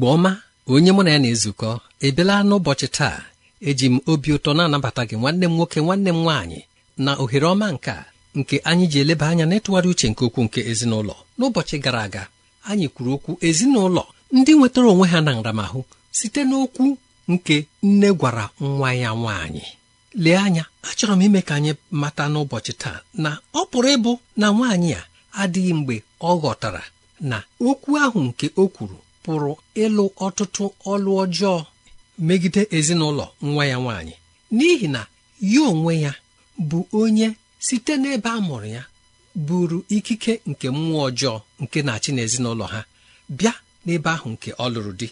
igbo ọma onye mụ na ya na-ezukọ ebela n'ụbọchị taa eji m obi ụtọ na-anabata gị nwanne m nwoke nwanne m nwaanyị na ohere ọma nke a nke anyị ji eleba anya n'ịtụgharị uche nke okwu nke ezinụlọ n'ụbọchị gara aga anyị kwuru okwu ezinụlọ ndị nwetara onwe ha na nramahụ site n'okwu nke nne gwara nwa ya nwaanyị lee anya achọrọ m ime ka anyị mata n'ụbọchị taa na ọ pụrụ ịbụ na nwaanyị a adịghị mgbe ọ ghọtara na okwu ahụ nke o kwuru pụrụ ịlụ ọtụtụ ọlụ ọjọọ megide ezinụlọ nwa ya nwaanyị n'ihi na ya onwe ya bụ onye site n'ebe a mụrụ ya buru ikike nke mmụọ ọjọọ nke na-achị n'ezinụlọ ha bịa n'ebe ahụ nke ọ lụrụ di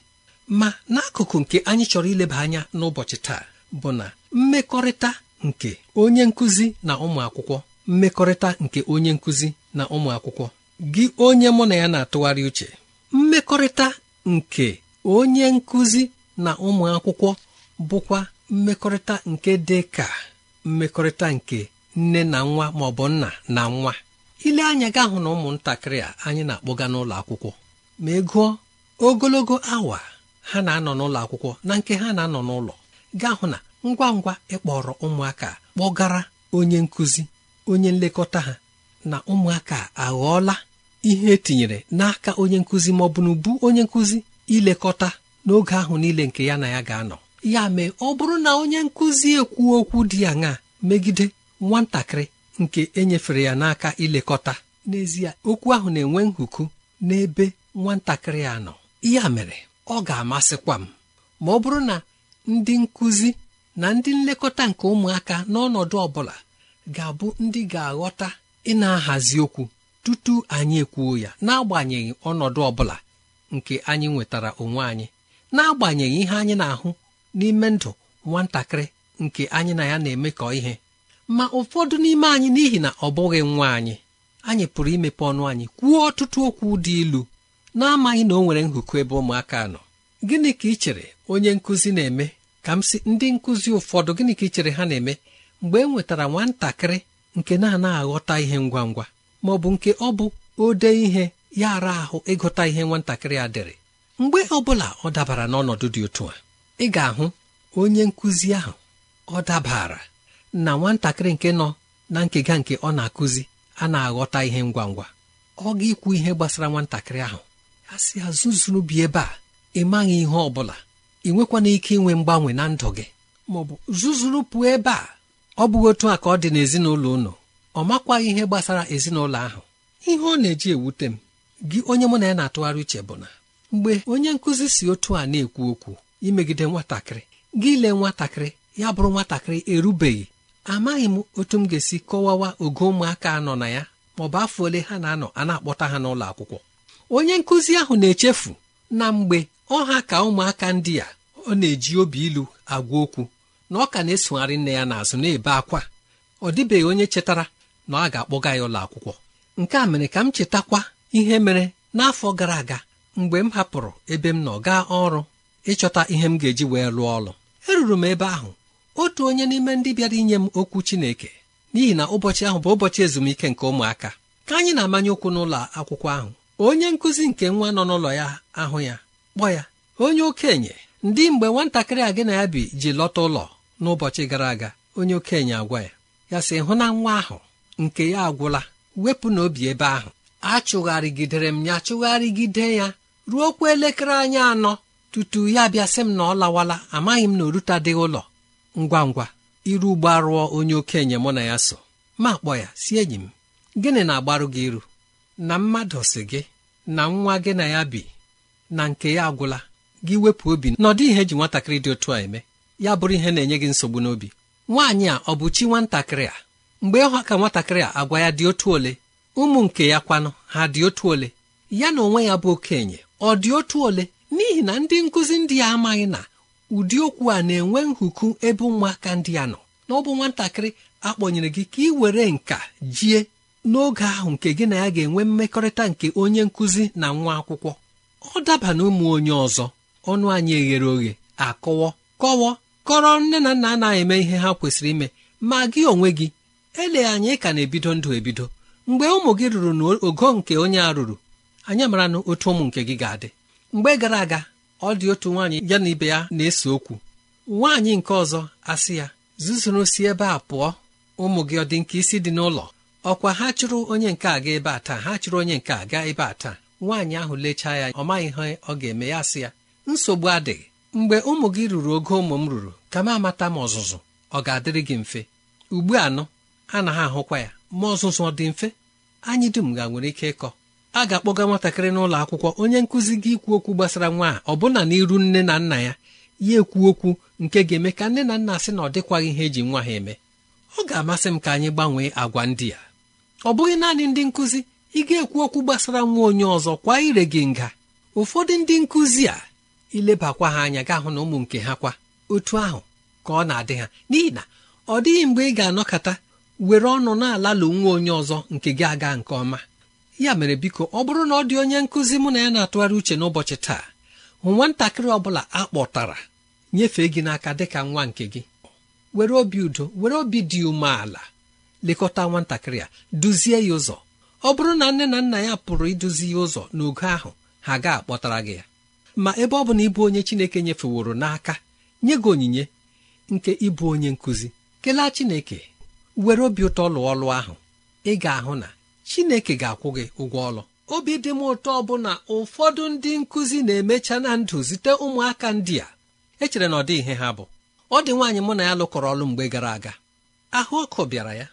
ma n'akụkụ nke anyị chọrọ ileba anya n'ụbọchị taa bụ na mmekọrịta nke onye nkụzi na ụmụ akwụkwọ mmekọrịta nke onye nkụzi na ụmụ akwụkwọ gị onye mụ na ya na-atụgharị uche mmekọrịta nke onye nkụzi na ụmụ akwụkwọ bụkwa mmekọrịta nke dị ka mmekọrịta nke nne na nwa ma bụ nna na nwa ile anya gaa hụ na ụmụntakịrị a anyị na-akpọga n'ụlọ akwụkwọ ma ị ogologo awa ha na-anọ n'ụlọ akwụkwọ na nke ha na-anọ n'ụlọ gaa na ngwa ngwa ịkpọrọ ụmụaka kpọgara onye nkụzi onye nlekọta ha na ụmụaka aghọọla ihe etinyere n'aka onye nkụzi ma ọ bụ n'ubu onye nkụzi ilekọta n'oge ahụ niile nke ya na ya ga-anọ ya mee ọ bụrụ na onye nkụzi ekwu okwu dị aṅaa megide nwatakịrị nke enyefere ya n'aka ilekọta n'ezie okwu ahụ na-enwe nhuku n'ebe nwatakịrị a nọ ya mere ọ ga-amasịkwa m ma ọ bụrụ na ndị nkụzi na ndị nlekọta nke ụmụaka n'ọnọdụ ọ bụla ga-abụ ndị ga-aghọta ị na-ahazi okwu tutu anyị ekwuo ya n'agbanyeghị ọnọdụ ọ bụla nke anyị nwetara onwe anyị n'agbanyeghị ihe anyị na-ahụ n'ime ndụ nwatakịrị nke anyị na ya na-emekọ ihe ma ụfọdụ n'ime anyị n'ihi na ọ bụghị nwa anyị anyị pụrụ imepe ọnụ anyị kwuo ọtụtụ okwu dị ilu na-amaghị na o nwere nhụkụ ebe ụmụaka nọ gịnị ka ị chere onye nkụzi na-eme ka m sị ndị nkụzi ụfọdụ gịnị ka ị chere ha na-eme mgbe e nwetara nwatakịrị nke na-anaghị aghọta ihe ngwa ngwa ma ọ bụ nke ọ bụ ode ihe ya ara ahụ ịgụta ihe nwatakịrị a dịrị mgbe ọ bụla ọ dabara n'ọnọdụ dị otu a ị ga-ahụ onye nkụzi ahụ ọ dabara na nwatakịrị nke nọ na nkega nke ọ na-akụzi a na-aghọta ihe ngwa ngwa ọ ga-ekwu ihe gbasara nwatakịrị ahụ a sị azụzụrụ bi ebe a ị maghị ihe ọ bụla ị nwekwana ike inwe mgbanwe na ndụ gị ma bụ pụọ ebe a ọ bụghị otu a ka ọ dị n'ezinụlọ ụnụ ọ makwaghị ihe gbasara ezinụlọ ahụ ihe ọ na-eji ewute m gị onye mụ na ya na-atụgharị uche bụ na mgbe onye nkụzi si otu a na-ekwu okwu imegide nwatakịrị gị lee nwatakịrị ya bụrụ nwatakịrị erubeghị amaghị m otu m ga-esi kọwawa ogo ụmụaka nọ na ya ma ọ bụ afọ ole ha na-anọ a na-akpọta ha n'ụlọ akwụkwọ onye nkụzi ahụ na-echefu na mgbe ọha ka ụmụaka ndị a ọ na-eji obi ilu agwa okwu na ọ ka na-esogharị nne ya n'azụ na-ebe akwa ọ dịbeghị onye chetara na a ga-akpọga ya ụlọ akwụkwọ nke a mere ka m chetakwa ihe mere n'afọ gara aga mgbe m hapụrụ ebe m nọ gaa ọrụ ịchọta ihe m ga-eji wee rụọ ọrụ eruru m ebe ahụ otu onye n'ime ndị bịara inye m okwu Chineke n'ihi na ụbọchị ahụ bụ ụbọchị ezumike nke ụmụaka ka anyị na-amanye ụkwụ n'ụlọ akwụkwọ ahụ onye nkụzi nke nwa nọ n'ụlọ ya ahụ ya kpọ ya onye okenye ndị mgbe nwatakịrị a gị na ya bi ji lọta ụlọ n'ụbọchị gara aga onye okenye agwa ya ya si hụ na nwa ahụ nke ya agwụla wepụ n'obi ebe ahụ achụgharịgidere m ya chụgharịgide ya ruo okwu elekere anyị anọ tutu ya bịa sị m na ọ lawala amaghị m na oruta dịghị ụlọ ngwa ngwa iru ugbo onye okenye mụ na ya so ma kpọ ya si enyi m gịnị na-agbarụ gị iru na mmadụ si gị na nwa gị na ya bi na nke ya agwụla gị wepụ obi na ọ dị ihe e ji nwatakịrị dị otu a eme ya bụrụ ihe na-enye gị nsogbu n'obi nwaanyị a ọ bụ chi nwatakịrị a mgbe ịhụ ka nwatakịrị a agwa ya dị otu ole ụmụ nke ya kwanụ ha dị otu ole ya na onwe ya bụ okenye ọ dị otu ole n'ihi na ndị nkụzi ndị ya amaghị na ụdị okwu a na-enwe nhuku ebe ụmụaka ndị a nọ na ọ bụ nwatakịrị akpọnyere gị ka ị were nka jie n'oge ahụ nke gị na ya ga-enwe mmekọrịta nke onye nkụzi na nwa akwụkwọ ọ daba na ụmụ onye ọzọ ọnụ anyị eghere oghe akọwọ kọwọ kọrọ nne na nna anaghị eme ihe ha kwesịrị ime ma gị onwe gị ele anyị ka na-ebido ndụ ebido mgbe ụmụ gị ruru n'ogo nke onye a ruru anyị mara na otu ụmụ nke gị ga-adị mgbe gara aga ọ dị otu nwaanyị ya na ibe ya na-ese okwu nwaanyị nke ọzọ asị ya zuzuru si ebe a pụọ ụmụ gị ọ dị nke isi dị n'ụlọ ọkwa ha chụrụ onye nke a gaa ebe a taa ha chụrụ onye nke a gaa ebe a taa nwaanyị ahụ lechaa ya ọ maghị ihe ọ ga-eme ya sị ya nsogbu adịghị mgbe ụmụ gị ruru ogo ụmụ m ruru ka m amata m ọzụzụ ọ ga-adịrị gị mfe ugbu anọ a na ha ahụkwa ya ma ọzụzụ ọ dị mfe anyị dum ga nwere ike ịkọ a ga-akpọga nwatakịrị n'ụlọ akwụkwọ onye nkụzi gị ikwu okwu gbasara nwa a ọbụna n'iru nne na nna ya ya ekwu okwu nke ga-eme ka nne na nna sị na ọ dịkwaghị ihe eji nwa ha eme ọ ga-amasị m ka anyị gbanwee agwa ndị a ọ bụghị naanị ndị nkụzi ị ga-ekwu okwu gbasara nwa onye ọzọ kwa ire gị nga ụfọdụ ndị nkụzi a ilebakwa ha anya gaa hụ na ụmụ nke ha kwa otu ahụ ka ọ na-adị ha n'ihi na ọ dịghị mgbe ị ga-anọkọta were ọnụ na-alalụ nwa onye ọzọ nke gị aga nke ọma ya mere biko ọ bụrụ na ọ dị onye nkụzi mụ na ya na-atụgharị uche n'ụbọchị taa hụ nwatakịrị ọ bụla a kpọtara nyefee gị n'aka dịka nwa nke gị were obi udo were obi dị umeala lekọta nwatakịrị a duzie ya ụzọ ọ bụrụ na nne na nna ya pụrụ iduzi ya ụzọ n'ogo ahụ ha ga-akpọtara gị ya ma ebe ọ bụ na ịbụ onye Chineke nyefeworo n'aka nye gị onyinye nke ịbụ onye nkụzi kelee Chineke were obi ụtọ lụọ ọlụ ahụ ị ga-ahụ na chineke ga-akwụ gị ụgwọ ọlụ obi dị m ụtọ bụ na ụfọdụ ndị nkụzi na-emecha na ndụ zite ụmụaka ndị a echere na ọ dịghị ihe ha bụ ọ dị nwaanyị mụ na ya lụkọrọ ọlụ mgbe gara aga ahụ ọkụ bịara ya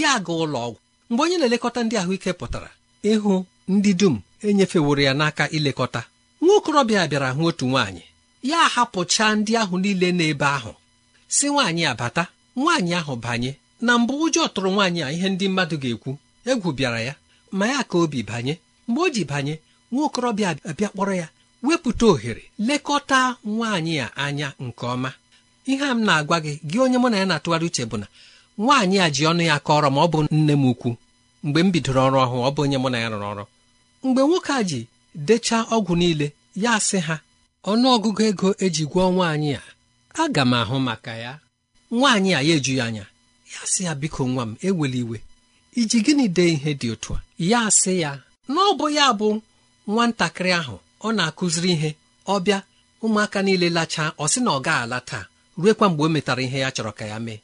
ya aga ụlọ ọgwụ mgbe onye na-elekọta ndị ahụike pụtara ịhụ ndị dum enyefeworo ya n'aka ilekọta nwa okorobịa bịara hụ otu nwaanyị ya ahapụcha ndị ahụ niile n'ebe ahụ si nwaanyị abata nwaanyị ahụ banye na mbụ ụjọ tụrụ nwaanyị a ihe ndị mmadụ ga-ekwu egwu bịara ya ma ya ka obi banye mgbe o ji banye nwa okorobịa abịa kpọrọ ya wepụta ohere lekọta nwaanyị a anya nke ọma ihe a m na-agwa gị gị onye mụ na ya na-atụgharị uche bụ na nwaanyị a ji ọnụ ya kọrọ ma ọ bụ nne m ukwu mgbe m bidoro ọrụ ọhụụ ọ bụ onye mụ na ya rụrụ ọrụ mgbe nwoke a ji dechaa ọgwụ niile ya sị ha ọnụ ọgụgụ ego eji gwọọ nwaanyị a aga m ahụ maka ya nwaanyị a ya eju ya anya ya sị ya biko nwa m eweli iwe iji gịnị dee ihe dị otu a ya sị ya na ọ bụ ya bụ nwatakịrị ahụ ọ na-akụziri ihe ọ bịa ụmụaka niile lachaa ọ sị na ọ ga-ala taa kwa mgbe o metara ihe ya chọrọ ka ya mee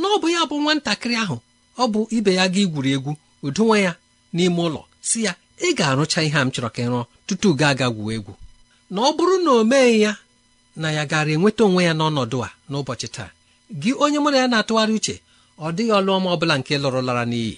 na ọ bụ ya bụ nwatakịrị ahụ ọ bụ ibe ya ga igwuri egwu udonwa ya n'ime ụlọ si ya ị ga-arụcha ihe a m chọrọ ka ị rụọ tutu gaa aga gwuo egwu na ọ bụrụ na o meghị ya na ya gara enweta onwe ya n'ọnọdụ a n'ụbọchị taa gị onye na ya na-atụgharị uche ọ dịghị ọlụọma ọbụla nke lara n'iyi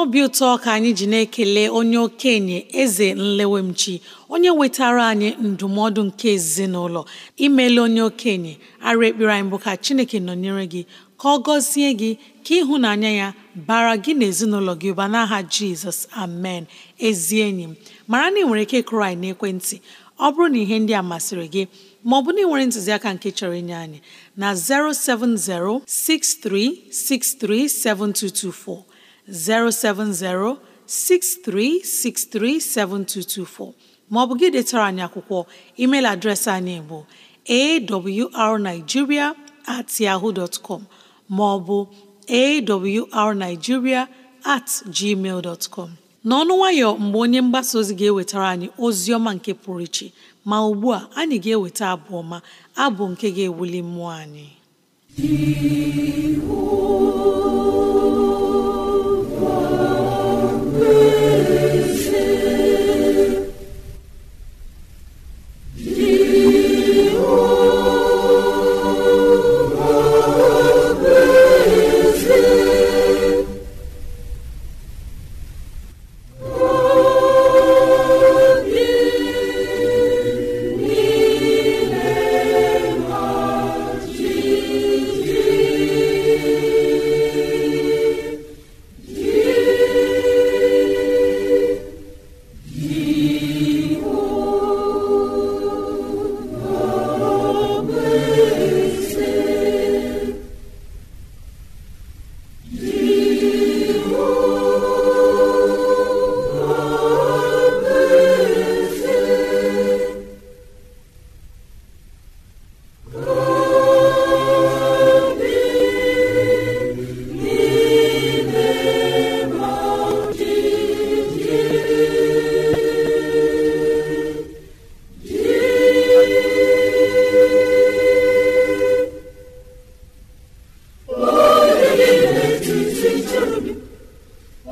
n'obi ụtọ ka anyị ji na-ekele onye okenye eze nlewemchi onye wetara anyị ndụmọdụ nke ezinụlọ imele onye okenye ara ekpere anyị bụ ka chineke nọnyere gị ka ọ gọzie gị ka ịhụnanya ya bara gị na ezinụlọ gị ụba n'aha jizọs amen ezi enyi m mara na ị nwere ike kụrụ anyị n'ekwentị ọ bụrụ na ihe ndị a masịrị gị bụ na ị nwere ntụziaka nke chọrọ inye anyị na 7224 070 maọbụ gị detara anyị akwụkwọ email adreesị anyị bụ arigiria at yahoo com maọbụ awrnigeria at gmail com n'ọnụ nwayọ mgbe onye mgbasa ozi ga-ewetara anyị ozi ọma nke pụrụ iche ma ugbu a anyị ga-eweta abụ ọma abụ nke ga-ewuli mmụọ anyị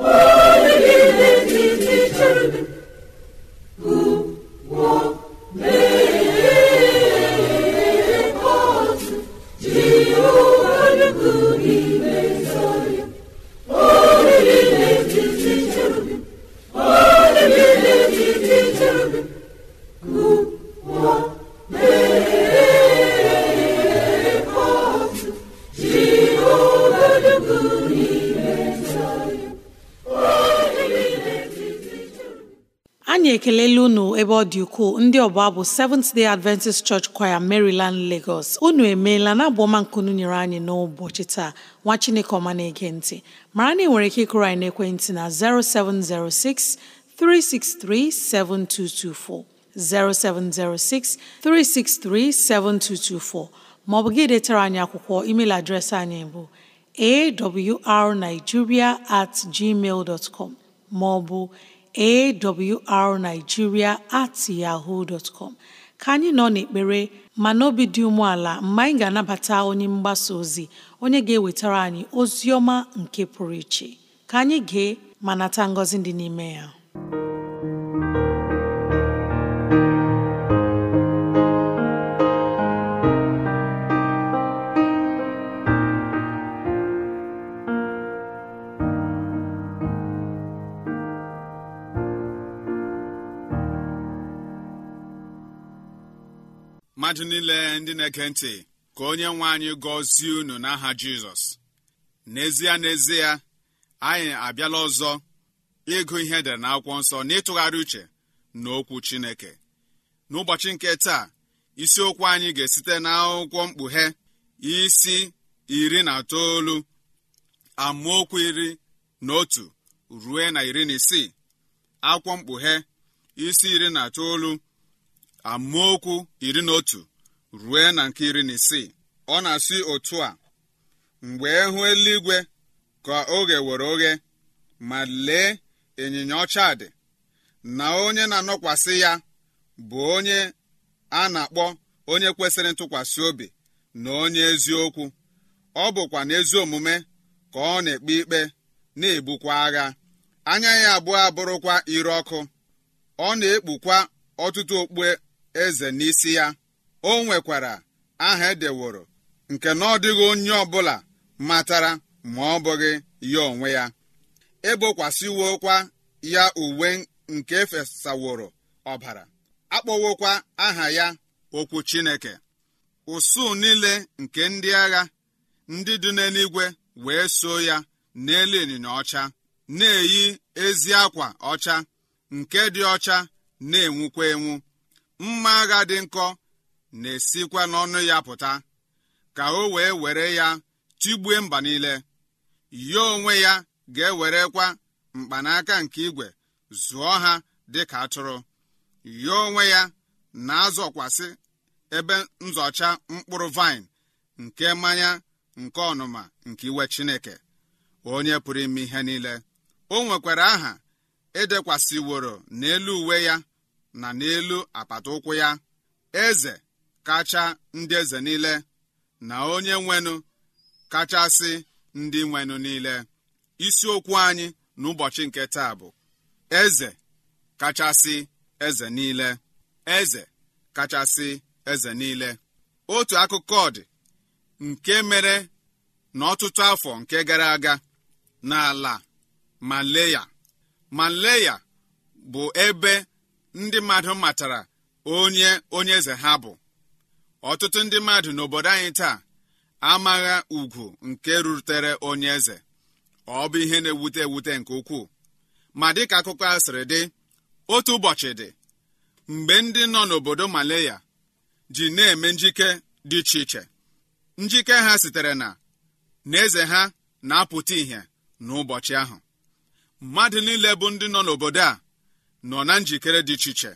Oh! ndị ọbụ bụ Seventh Day Adventist Church Choir Maryland Lagos unu emeela na abụọmankunu nyere anyị n'ụbọchị taa nwa Chineke ọma na-ege ntị mara na ị nwere ike ịkụrụ anyị n'ekwentị na 0706 363 7224 0706 363 7224 maọbụ gị detara anyị akwụkwọ email adreesị anyị bụ awrnigeria at gmail dot maọbụ awrnigeria at yahoo dot com ka anyị nọ n'ekpere ma n'obi dị umeala mgbe anyị ga-anabata onye mgbasa ozi onye ga-ewetara anyị ozi ọma nke pụrụ iche ka anyị gee manata nata ngọzi dị n'ime ya mmadụ niile ndị na-ege ntị ka onye nwe anyị gọzie unu n'aha jizọs n'ezie n'ezie anyị abịala ọzọ ịgụ ihe edere na akwụkwọ nsọ n'ịtụgharị ịtụgharị uche na okwu chineke n'ụbọchị nke taa isiokwu anyị ga-esite n'akwụkwọ mkpughe isi iri na itoolu amaokwu iri na otu rue na iri na isii akwụkwọ mkpughe isi iri na itoolu amaokwu iri na otu rue na nke iri na isii ọ na-asị otu a mgbe ehu eluigwe ka oge were oghe ma lee ịnyịnya ọcha dị na onye na-anọkwasị ya bụ onye a na-akpọ onye kwesịrị ntụkwasị obi na onye eziokwu ọ bụkwa n'ezi omume ka ọ na-ekpe ikpe na-ebukwa agha anya ya abụọ abụrụkwa ire ọkụ ọ na-ekpukwa ọtụtụ okpue eze n'isi ya o nwekwara aha edeworo nke na ọ dịghị onye ọbụla matara ma ọ bụghị ya onwe ya ebokwasịwokwa ya uwe nke efesaworo ọbara akpọwokwa aha ya okwu chineke usuu niile nke ndị agha ndị dị n'eluigwe wee so ya n'elu ịnyịnya ọcha na-eyi ezi akwa ọcha nke dị ọcha na-enwukwa enwu mma agha dị nkọ na-esikwa n'ọnụ ya pụta ka o wee were ya tigbue mba niile yo onwe ya ga-ewerekwa mkpanaka nke igwe zụọ ha dị ka atụrụ yo onwe ya na-azọkwasị ebe nzọcha mkpụrụ vaịn nke mmanya nke ọnụma nke iwe chineke onye pụrụ ime ihe niile o nwekwara aha edekwasịworo n'elu uwe ya na n'elu apata ụkwụ ya eze kacha ndị eze niile na onye nwenụ kachasị ndị nwenụ niile isiokwu anyị n'ụbọchị nke taa bụ eze kachasị eze niile eze kachasị eze niile otu akụkọ dị nke mere n'ọtụtụ afọ nke gara aga n'ala maleya maleya bụ ebe ndị mmadụ matara onye onye eze ha bụ ọtụtụ ndị mmadụ n'obodo anyị taa amagha ugwu nke rutere onye eze ọ bụ ihe na-ewute ewute nke ukwuu ma dịka akụkọ sịrị dị otu ụbọchị dị mgbe ndị nọ n'obodo Malaya ji na-eme njike dị iche iche njike ha sitere na na eze ha na-apụta ìhè n'ụbọchị ahụ mmadụ niile bụ ndị nọ n'obodo a nọ na njikere dị iche iche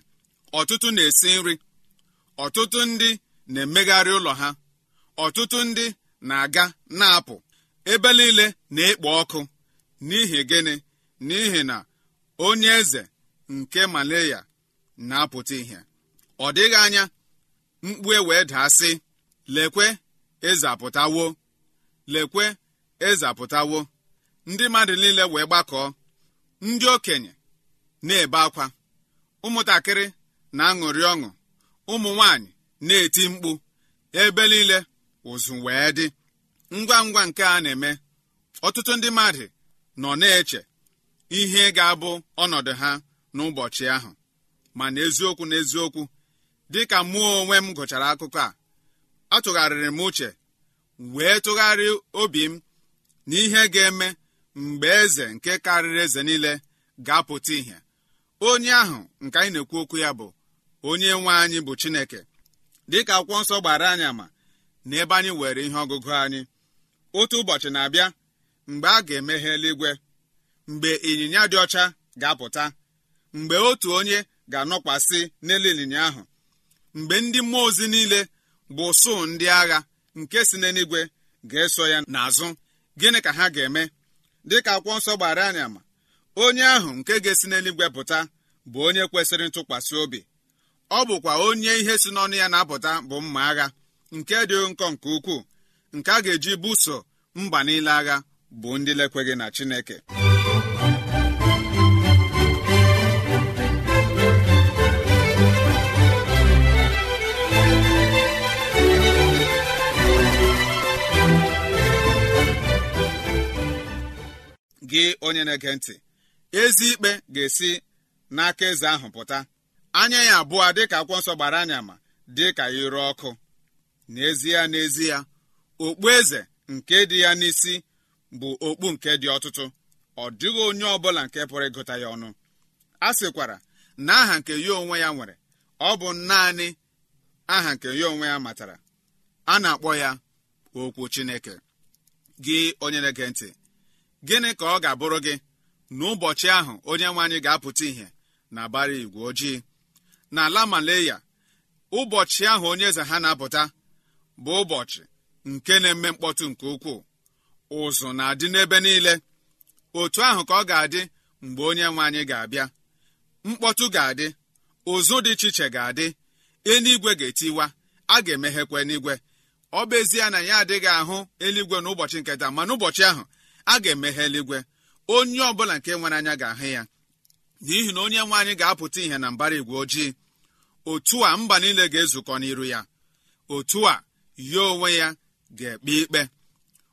ọtụtụ na-esi nri ọtụtụ ndị na-emegharị ụlọ ha ọtụtụ ndị na-aga na-apụ ebe niile na-ekpo ọkụ n'ihi gịnị n'ihi na onye eze nke malaya na-apụta ihe ọ dịghị anya mkpu e wee daa lekwe eze apụtawo lekwe eze apụtawo ndị mmadụ niile wee gbakọọ ndị okenye na-ebe akwa ụmụntakịrị na-aṅụrị ọṅụ ụmụ nwanyị na-eti mkpu ebe niile ụzụ wee dị ngwa ngwa nke a na-eme ọtụtụ ndị mmadụ nọ na-eche ihe ga-abụ ọnọdụ ha n'ụbọchị ahụ mana eziokwu na eziokwu dịka mụọ onwe m gụchara akụkọ a atụgharịrị m uche wee tụgharịa obi m na ihe ga-eme mgbe eze nke karịrị eze niile ga-apụta ìhè onye ahụ nke anyị na-ekwu okwu ya bụ onye nwe anyị bụ chineke dịka akwụkwọ nsọ gbara anyị ama na ebe anyị were ihe ọgụgụ anyị otu ụbọchị na-abịa mgbe a ga-emeghe eluigwe mgbe ịnyịnya dị ọcha ga-apụta mgbe otu onye ga-anọkwasị n'elu ịnyịnya ahụ mgbe ndị mmụọ ozi niile bụ sụ ndị agha nke si n'eluigwe ga-eso ya n'azụ gịnị ka ha ga-eme dịka akwụkwọ nsọ gbara anyị ama onye ahụ nke ga-esi n'eluigwe pụta bụ onye kwesịrị ntụkwasị obi ọ bụkwa onye ihe si n'ọnụ ya na-apụta bụ mma agha nke dị nkọ nke ukwuu nke a ga-eji buso mba niile agha bụ ndị lekweghị na Chineke gị onye na-ege ntị ezi ikpe ga-esi n'aka eze ahụ pụta anya ya abụọ dịka akwụkwọ nsọ gbara anya ma dịka ire ọkụ n'ezie n'ezie okpu eze nke dị ya n'isi bụ okpu nke dị ọtụtụ ọ dịghị onye ọbụla nke pụrụ ịgụta ya ọnụ a sịkwara na aha nke ya onwe ya nwere ọ bụ naanị aha nke ya onwe ya matara a na-akpọ ya okwu Chineke gị onye na-ege ntị gịnị ka ọ ga-abụrụ gị n'ụbọchị ahụ onye nwe anyị ga-apụta ìhè na bara igwe ojii n'ala Malaya, ụbọchị ahụ onye eze ha na-apụta bụ ụbọchị nke na-eme mkpọtụ nke ukwuu ụzụ na-adị n'ebe niile otu ahụ ka ọ ga-adị mgbe onye nwe anyị ga-abịa mkpọtụ ga-adị ụzụ dị iche iche ga-adị eluigwe ga-etiwa a ga-emeghekwa eluigwe ọ bụ ezie na ya adịghị ahụ eluigwe n'ụbọchị nketa mana ụbọchị ahụ a ga-emeghe eluigwe onye ọbụla nke nwere anya ga-ahụ ya n'ihi na onye nwe anyị ga-apụta ihe na mbara igwe ojii otu a mba niile ga-ezukọ n'iru ya otu a ya onwe ya ga-ekpe ikpe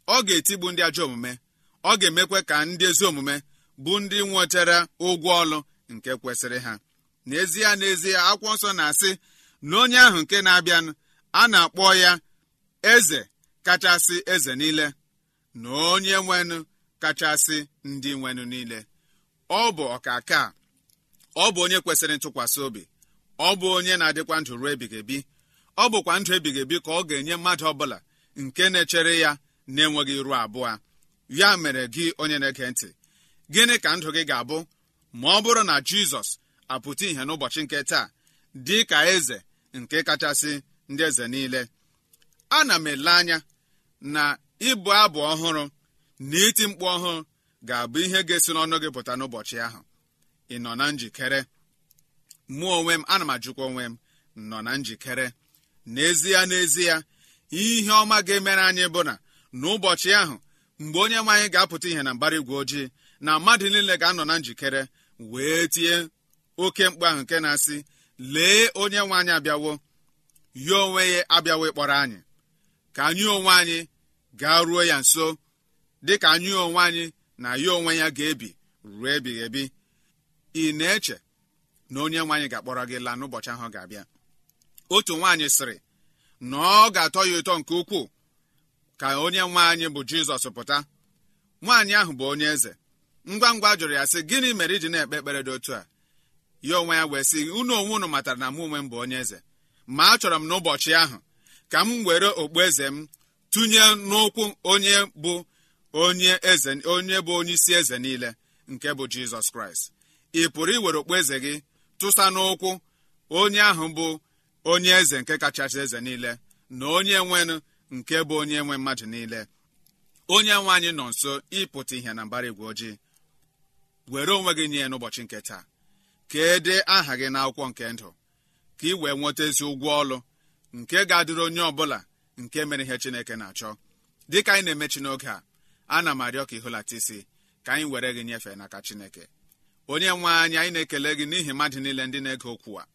ọ ga-etigbu ndị ajọ omume ọ ga-emekwa ka ndị ezi omume bụ ndị nwetara ụgwọ ọlụ nke kwesịrị ha n'ezie n'ezie akwụkwọ nsọ na-asị na onye ahụ nke na-abịanụ a na-akpọ ya eze kachasị eze niile na onye nwenụ kachasị ndị nwenụ niile ọ bụ ọkaka ọ bụ onye kwesịrị ntụkwasị obi ọ bụ onye na-adịkwa ndụ ruo ebighị ebi ọ bụkwa ndụ ebighị ebi ka ọ ga-enye mmadụ ọbụla nke na-echere ya na-enweghị iru abụọ ya mere gị onye na-ege ntị gịnị ka ndụ gị ga-abụ ma ọ bụrụ na jizọs apụta ìhè n'ụbọchị nke taa dị ka eze nke kachasị ndị eze niile ana m ele anya na ịbụ abụ ọhụrụ na iti mkpu ọhụụ ga-abụ ihe ga-esi n'ọnụ gị pụta n'ụbọchị ahụ ị nọ na njikere mụọ onwe m ana m ajụkwa onwe m nọ na njikere n'ezie n'ezie ihe ọma ga-emere anyị bụ na n'ụbọchị ahụ mgbe onye nwaanyị ga-apụta ihe na mbara igwe ojii na mmadụ niile ga-anọ na njikere wee tinye oke mkpu ahụ nke na-asị lee onye nwaanyị abịawo ya onwe ya abịawo ịkpọrọ anyị ka anyị onwe anyị gaa ruo ya nso dịka anyị onwe anyị na ya onwe ya ga-ebi ruo ebighị ebi ị na-eche na onye nwe anyị ga-akpọrọ gị laa n'ụbọchị ahụ ga-abịa otu nwaanyị sịrị na ọ ga-atọ ya ụtọ nke ukwuu ka onye nwe anyị bụ jizọs pụta nwaanyị ahụ bụ onye eze ngwa ngwa jụrụ ya sị gịnị mere iji na-ekpe ekpere dị otu a ya onwe ya wee sị unu onwe unu matara na mụ onwe m bụ onye eze ma achọrọ m n'ụbọchị ahụ ka m were okpueze m tụnye n'ụkwụ onye bụ onye eze onye bụ onye isi eze niile nke bụ jizọs kraịst ị pụrụ iwere okpueze gị tụsa n'ụkwụ onye ahụ bụ onye eze nke kachasị eze niile na onye nwenụ nke bụ onye nwe mmadụ niile onye nwe anyị nọ nso ịpụta ihe na mbara igwe ojii were onwe gị nye n'ụbọchị nke taa ka e dee aha gị n'akwụkwọ nke ndụ ka ị wee nweta ezi ụgwọ ọlụ nke ga-adịrị onye ọbụla nke mere ihe Chineke na-achọ dịka anyị na-emechi n'oge a ana m arịọ ka ịhụlata ka anyị were gị nyefee n'aka chineke onye nwe anyị anyị na-ekele gị n'ihi mmadụ niile ndị na-ege okwu a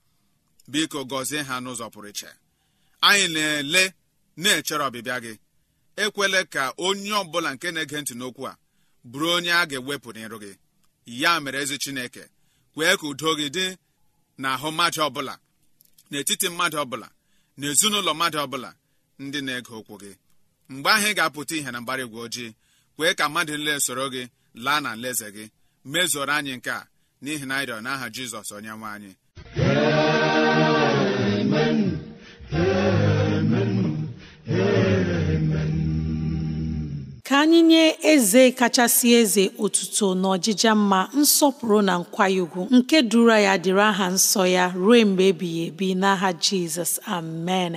biko gọzie ha n'ụzọ pụrụ iche anyị na-ele na-echere ọbịbịa gị ekwele ka onye ọbụla nke na-ege ntị n'okwu a bụrụ onye a ga-ewepụ n'iru gị ya mere ezi chineke kwee ka udo gị dị n'ahụ mmadụ ọbụla n'etiti mmadụ ọbụla na ezinụlọ mmadụ ọbụla ndị na-ege okwu gị mgbe ahụ ị ga-apụta ihe na mgbara igwe ojii kwee ka mmadụ nle soro gị laa na nleze gị mezoro anyị nke a n'ihi na ịrịọ n'aha jizọs onye nwe anyị ka anyị nye eze kachasị eze otuto na ọjịja mma nsọpụrụ na nkwanye ugwu nke duru ya dịrị aha nsọ ya ruo mgbe ebighị ebi n'aha jizọs amen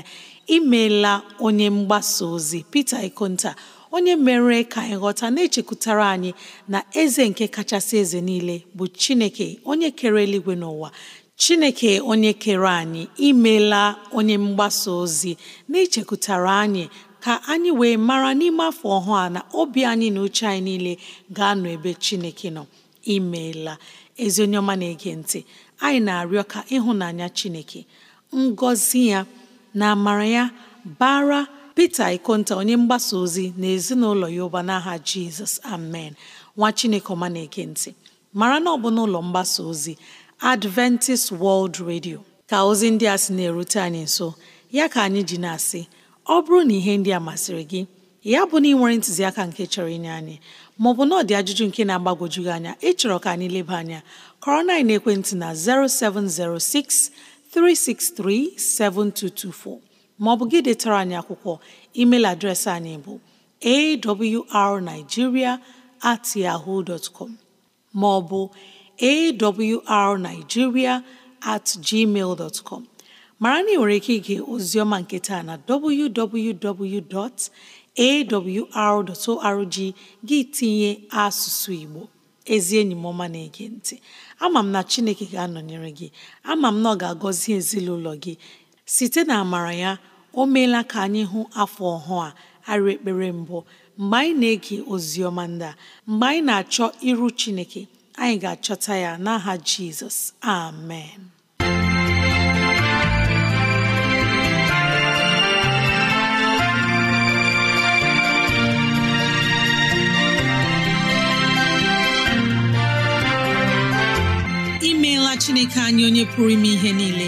imeela onye mgbasa ozi pete Ikonta onye mere ka anyị ghọta na-echekwutara anyị na eze nke kachasị eze niile bụ chineke onye kere eluigwe n'ụwa chineke onye kere anyị imela onye mgbasa ozi na-echekwutara anyị ka anyị wee mara n'ime afọ ọhụụ a na obi anyị na uche anyị niile ga-anọ ebe chineke nọ imeela ezi onye ọma na-ege ntị anyị na-arịọ ka ịhụnanya chineke ngọzi ya na amara ya bara Pita Ikonta onye mgbasa ozi na ezinụlọ ya ụba n'aha Jizọs amen nwa Chineke ọma na ekentị ntị mara na ọ bụ n'ụlọ mgbasa ozi Adventist World Radio ka ozi ndị a sị na-erute anyị nso ya ka anyị ji na-asị ọ bụrụ na ihe ndị a masịrị gị ya bụ na ị nwere ntụziaka nke chọrọ inye anyị maọbụ na ọ dị ajụjụ nke na agbagojugị anya ịchọrọ ka anyị leba anya kọrọ na ekwentị na 0706 363 7224 maọbụ gị detara anyị akwụkwọ email adreesị anyị bụ arigiria at yahoo dot com maọbụ awrnigeria at gmail dot com mara na ị nwere ike ige oziọma nke taa na www.awr.org gị tinye asụsụ Igbo ezi enyi m ọma na-ege ntị ama m na Chineke ga-anọnyere gị ama m na ọ ga-agọzi ezinụlọ gị site na amara ya o meela ka anyị hụ afọ ọhụụ a arị ekpere mbụ mgbe anyị na-ege ozi ọma ndị mgbe anyị na-achọ iru Chineke anyị ga-achọta ya n'aha Jizọs amen imeela Chineke anyị onye pụrụ ime ihe niile